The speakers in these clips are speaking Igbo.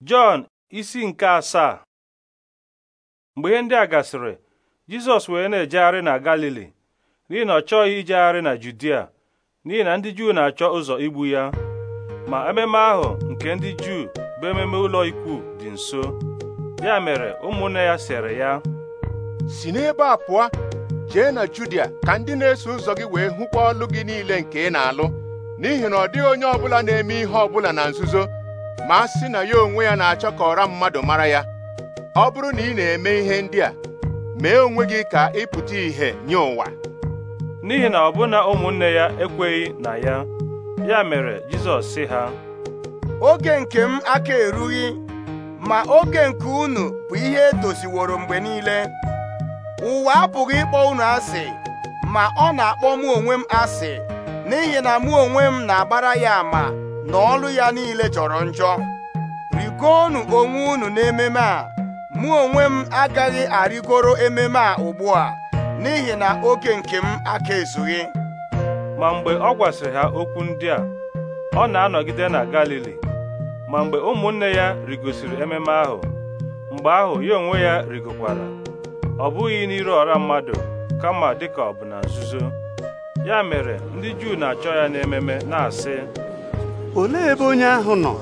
Jọn isi nke asaa mgbe ihe ndị a gasịrị Jizọs wee na-ejegharị na Galili n'ihi na ọ chọghị ijegharị na Judia n'ihi na ndị Juu na-achọ ụzọ igbu ya ma ememe ahụ nke ndị Juu bụ ememe ụlọ ikwu dị nso ya mere ụmụnne ya sere ya si n'ebe a pụọ jee na Judia ka ndị na-eso ụzọ gị wee hụkwa ọlụ gị niile nke ị na-alụ n'ihi na ọ dịghị onye ọbụla na-eme ihe ọbụla na nzuzo ma a sị na ya onwe ya na-achọ ka ọra mmadụ mara ya ọ bụrụ na ị na-eme ihe ndị a mee onwe gị ka ị pụta ìhè nye ụwa n'ihi na ọbụna ụmụnne ya ekweghị na ya ya mere Jizọs sị ha oge nke m aka erughị ma oge nke unu bụ ihe edoziworo mgbe niile ụwa apụghị ịkpọ unu asị ma ọ na-akpọ mụ onwe m asị n'ihi na mụ onwe m na-agbara ya ama na ọlụ ya niile jọrọ njọ rigoonu onwe unu n'ememe a mụ onwe m agaghị arịgoro ememe a ugbu a n'ihi na oge nke m aka ezughị ma mgbe ọ gwasịrị ha okwu ndị a ọ na-anọgide na Galili ma mgbe ụmụnne ya rigosiri ememe ahụ mgbe ahụ ya onwe ya rigokwara ọ bụghị n'iru ọra mmadụ kama dịka ọ bụ nzuzo ya mere ndị Juu na-achọ ya n'ememe na-asị olee ebe onye ahụ nọ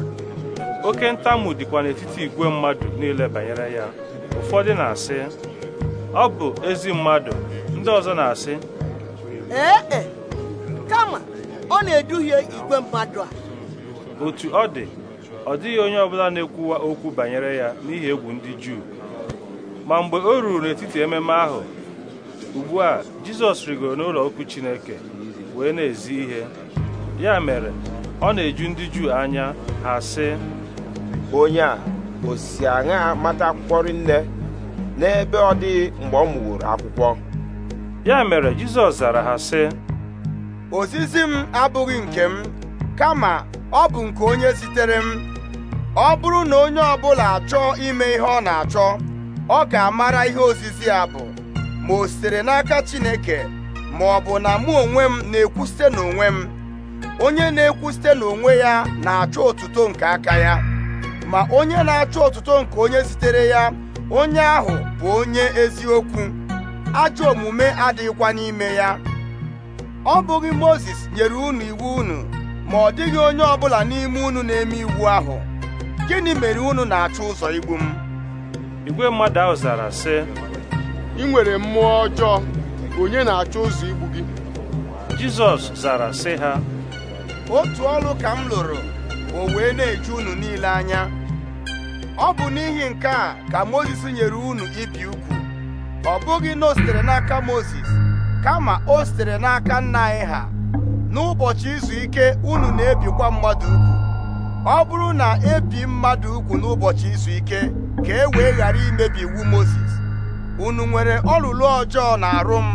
oke ntamu dịkwa n'etiti igwe mmadụ niile banyere ya ụfọdụ na-asị ọ bụ ezi mmadụ ndị ọzọ na-asị ee e, kama ọ na-eduhie igwe mmadụ a otu ọ dị ọ dịghị onye ọbụla na-ekwuwa okwu banyere ya n'ihi egwu ndị Juu ma mgbe o ruru n'etiti ememe ahụ ugbu a Jizọs rigoro n'ụlọ okwu Chineke wee na-ezi ihe ya mere ọ na-eju ndị Juu anya ha sị onye a osi aṅa mata akwụkwọ nne n'ebe ọ dịghị mgbe ọ mụworo akwụkwọ ya mere Jizọs zara ha sị ozizi m abụghị nke m kama ọ bụ nke onye zitere m ọ bụrụ na onye ọ bụla achọọ ime ihe ọ na-achọ ọ ga-amara ihe ozizi a bụ ma o sitere n'aka Chineke ma ọ bụ na mụ onwe m na-ekwu site n'onwe m onye na-ekwu site n'onwe ya na-achọ otuto nke aka ya ma onye na-achọ otuto nke onye zitere ya onye ahụ bụ onye eziokwu ajọ omume adịghịkwa n'ime ya ọ bụghị Mozis nyere unu iwu unu ma ọ dịghị onye ọbụla n'ime unu na-eme iwu ahụ gịnị mere unu na-achọ ụzọ igbu m igwe mmadụ ahụ zara sị ị nwere mmụọ ọjọọ onye na-achọ ụzọ igbu gị Jizọs zara sị ha otu ọrụ ka m lụrụ o wee na-eju unu niile anya ọ bụ n'ihi nke a ka Mozis nyere unu ibi ukwu. ọ bụghị na o sitere n'aka Mozis kama o sitere n'aka nna anyị ha n'ụbọchị izu ike unu na-ebikwa mmadụ ugwu ọ bụrụ na ebi mmadụ ukwu n'ụbọchị izu ike ka e wee ghara imebi iwu Mozis unu nwere ọlụlụ ọjọọ na arụ m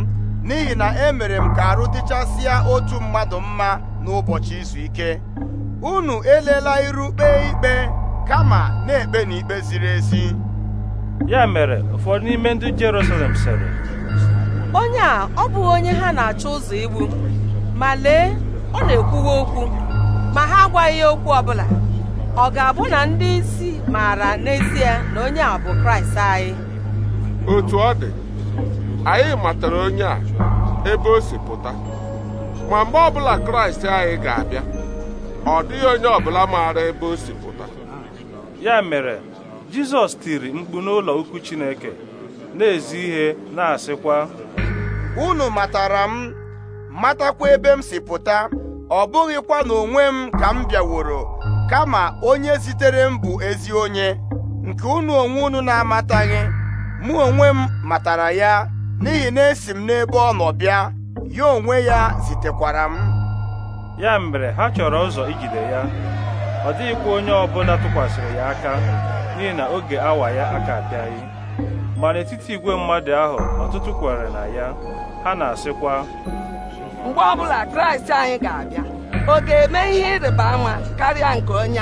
n'ihi na emere m ka arụ dịchasịa otu mmadụ mma n'ụbọchị izu ike unu elela iru kpee ikpe kama na-ekpe n'ikpe ziri ezi ya mere ụfọdụ n'ime ndị Jerusalem sịrị onye a ọ bụghị onye ha na-achọ ụzọ igbu ma lee ọ na-ekwuwa okwu ma ha agwaghị ya okwu ọbụla ọ ga-abụ na ndị isi maara n'ezie na onye a bụ Kraịst anyị otu ọ dị anyị matara onye a ebe o si pụta ma mgbe ọbụla kraịst anyị ga-abịa ọ dịghị onye ọbụla maara ebe o si pụta ya mere jizọs tiri mkpu n'ụlọ ukwu chineke na-ezi ihe na-asịkwa unu matara m matakwa ebe m si pụta ọ bụghịkwa na onwe m ka m bịaworo kama onye zitere m bụ ezi onye nke unu onwe unu na-amataghị mụ onwe m matara ya n'ihi na esi m n'ebe ọ nọ bịa ya onwe ya zitekwara m ya mere ha chọrọ ụzọ ijide ya ọ dịghịkwa onye ọbụla tụkwasịrị ya aka n'ihi na oge awa ya aka abịaghị ma n'etiti igwe mmadụ ahụ ọtụtụ kwere na ya ha na-asịkwa mgbe ọbụla kraịst anyị ga-abịa ọ ga-eme ihe ịrịba ama karịa nke onye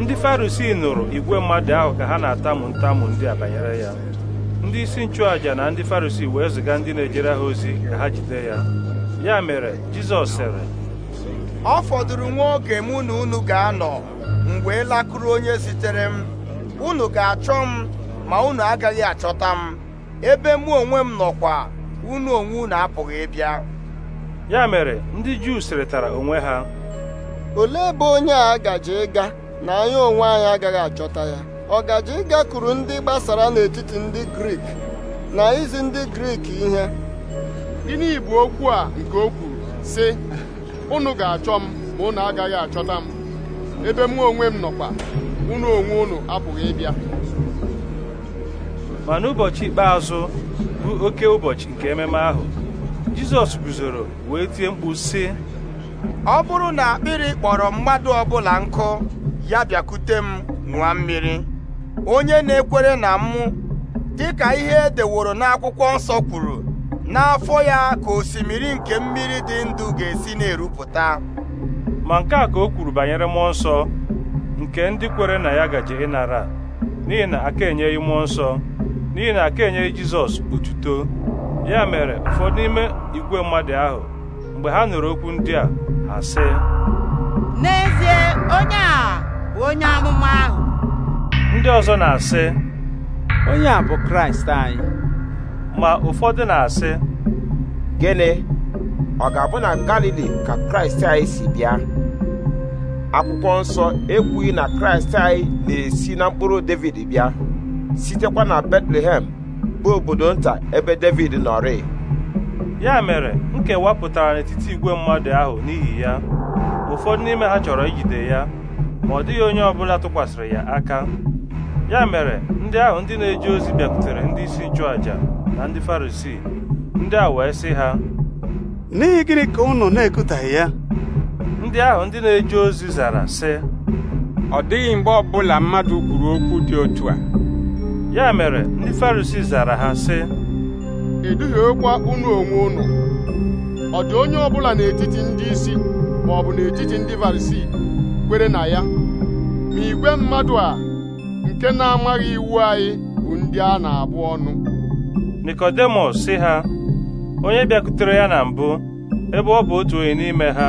ndị farisii nụrụ igwe mmadụ ahụ ka ha na-atamu ntamu ndị a banyere ya ndị isi nchụàjà na ndị farisii wee ziga ndị na-ejere ha ozi ka ha jide ya ya mere jizọs sịrị ọ fọdụrụ nwa oge mụ na unu ga-anọ mgbe wee lakụrụ onye zitere m unu ga-achọ m ma unu agaghị achọta m ebe mụ onwe m nọkwa unu onwe unu apụghị ịbịa ya mere ndị juu sịrịtara onwe ha olee ebe onye a gaje ịga na anyị onwe anyị agaghị achọta ya ọgaji gakwuru ndị gbasara n'etiti ndị Grik na izi ndị Grik ihe gịnị bụ okwu a nke okwu si sị unu ga-achọ m ma unu agaghị achọta m ebe mụ onwe m nọkwa unu onwe unu apụghị ịbịa ma n'ụbọchị ikpeazụ bụ oke ụbọchị nke ememe ahụ Jizọs guzoro wee tie mkpu sị ọ bụrụ na akpịrị kpọrọ mmadụ ọbụla nkụ ya bịakute m nwa mmiri onye na-ekwere na mụ dịka ihe e deworo n'akwụkwọ nsọ kwuru n'afọ ya ka osimiri nke mmiri dị ndụ ga-esi na-erupụta ma nke a ka o kwuru banyere mmụọ nsọ nke ndị kwere na ya gaje ịnara n'ihi na aka enyeghị mmụọ nsọ n'ihi na ka enyeghị Jizọs otuto ya mere ụfọdụ n'ime igwe mmadụ ahụ mgbe ha nụrụ okwu ndị a ha sị n'ezie onye a bụ onye amụma ahụ ndị ọzọ na-asị onye a bụ kraịst anyị ma ụfọdụ na-asị gịnị ọ ga-abụ na galili ka kraịst anyị si bịa akwụkwọ nsọ ekwughị na kraịst anyị na-esi na mkpụrụ david bịa sitekwa na betlehem bụ obodo nta ebe david nọrị ya mere nkewa pụtara n'etiti igwe mmadụ ahụ n'ihi ya ụfọdụ n'ime ha chọrọ ijide ya ma ọ dịghị onye ọbụla tụkwasịrị ya aka ya mere ndị ahụ ndị na-eje ozi bịakwutere ndị isi nchụaja na ndị farisii ndị a wee sị ha n'ihi gịnị ka unu na-ekutaghị ya ndị ahụ ndị na-eje ozi zara sị ọ dịghị mgbe ọbụla mmadụ kwuru okwu dị otu a ya mere ndị farisii zara ha sị okwa unu onwe unu ọ dị onye ọbụla n'etiti ndị isi ma ọ bụ n'etiti ndị farisii kwere na ya ma igwe mmadụ a nke na-amaghị iwu anyị bụ ndị a na-abụ ọnụ Nikodemọs sị ha onye bịakutere ya na mbụ ebe ọ bụ otu onye n'ime ha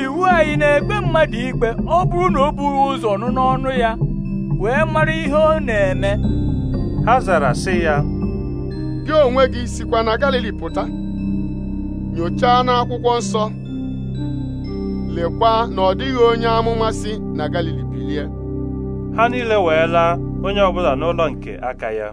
iwu anyị na-ekpe mmadụ ikpe ọ bụrụ na o bughị ụzọ nụ n'ọnụ ya wee mara ihe ọ na-eme ha zara sị ya gị onwe gị sikwa na Galili pụta nyochaa n'akwụkwọ nsọ lekwa na ọ dịghị onye amụmasị na Galili ha niile wee la onye ọbụla n'ụlọ nke aka ya